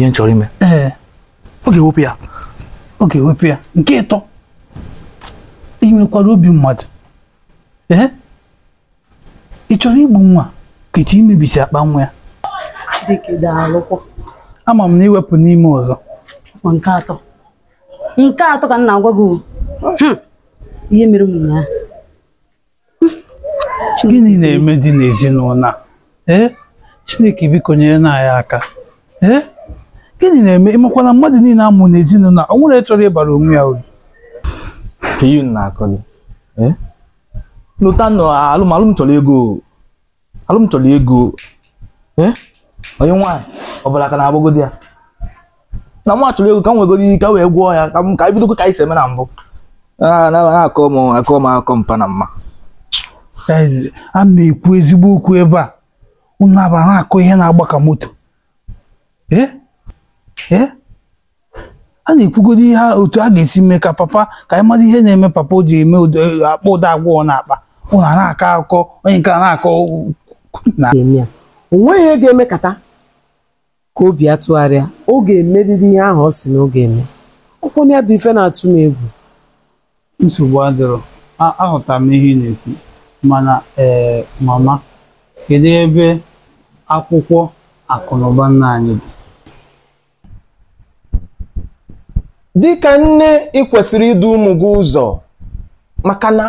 ihe m chọrọ ime ee ọ ga-ewepụ ya ọ ga-ewepụ ya nke ịtọ inwekwara obi mmadụ ee ị chọrọ igbu nwa ka ịchọ imebisi akpa nwa ya ama m na iwepụ n'ime ọzọ nke atọ nke atọ ka m na-agwa gị hmm. ihe mere m ya gịnị na-eme dị n'ezinụlọ ee chineke biko nyere na anyị aka ee gịnị na-eme ịmakwana mmadụ niile amụ n'ezinụlọ o nwere chọrọ ịbara onwe ya uru lụta nọ alụmalụ chọrọ ego alụm chọrọ ego onye nwaanyị ọbụla ka na agbago di ya na nwa chọrọ ego ka m nwegoro ka wee gwọọ ya ka m ka e bidokwa ka anyị eme na mbụ na-akọ m akọ m akọ mpa na mma a na-ekwu ezigbo okwu ebe a ụnụ unu a na-akọ ihe na-agba ka moto ee na-ekwugodo ihe otu a ga-esi mee ka papa ka anyị mara ihe na-eme papa o ji eme e, akpa ụda agwọ na akpa a na-akọ akụkọ onye nke a na-akọ nweghị ihe ga-emekata ka obi ya tụgharịa oge ga ihe ahụ ọ si na ọ ga-eme ya bụ ife na-atụ m egwu nsogbu adịrọ aghọtara m ihe na-ekwu mana ee mama kedu ebe akwụkwọ akụnụba nna anyị dị dịka nne ị kwesịrị idu ụmụ gị ụzọ maka na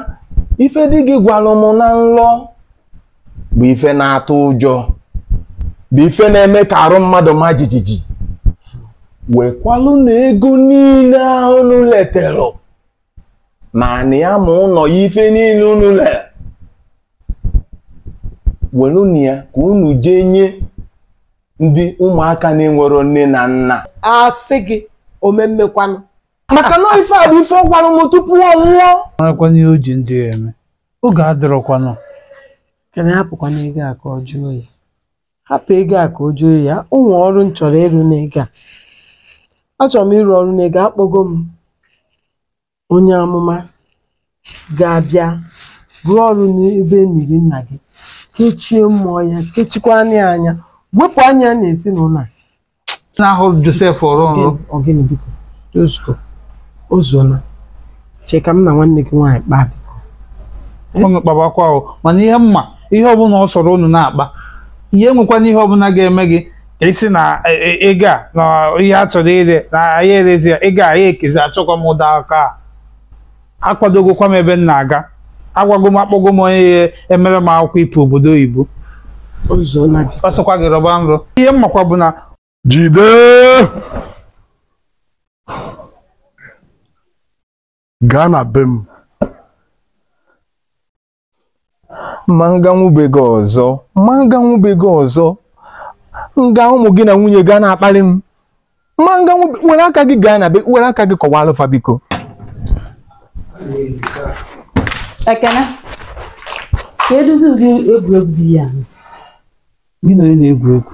ife dị gị gwara m na nlọ bụ ife na-atụ ụjọ bụ ife na-eme ka arụ mmadụ ma jijiji wekwalụ na ego niile ahụ unu ma na ya ma ụlọ ya ife niile unu le welu na ya ka unu jee nye ndị ụmụaka na-enwero nne na nna A sị gị omemmekwanụ maka na ife a bụ ife ọgwanụ m tupu ọ nwụọ marakwana ihe o ji ndị ya eme oge adịrọkwanụ kana hapụkwana ego a ka ọ jụọ ya hapụ ego a ka o jụọ ya ụmụ ọrụ m chọrọ ịrụ n'ego a achọrọ m ịrụ ọrụ n'ego akpọgo m onye amụma ga-abịa rụọ ọrụ n'ebe eniri nna gị kechie mmụọ ya kechikwa anya wepụ anya na ezinụlọ a na-ahụ Josef ọrụ ọrụ ọgịnị biko Tozuko o chee ka m na nwanne gị nwaanyị kpaa biko eh? unu kpabakwa ahụ mana ihe mma ihe ọbụla ọ sọrọ unu na-akpa ihe nwekwana ihe ọbụla ga-eme gị isi na ego e, a na ihe a chọrọ ire na anyị erezi ya ego anyị ekezi achọkwa m ụda aka a akwadogokwa m ebe m na-aga agwago m akpọgo m onye e, emere m akwụkwọ ịpụ obodo oyibo ọ gị rọba nrọ ihe mmakwa bụ na Jide Ghana na be m ma nganwube gị ọzọ ma nganwube gị ọzọ nga ụmụ gị na nwunye gaa na-akpali m ma nganwube were aka gị gaa na be were aka gị kọwaa alụfa biko ekene ka eduzi ụdị egwuregwu dị ya gị na onye na-egwu egwu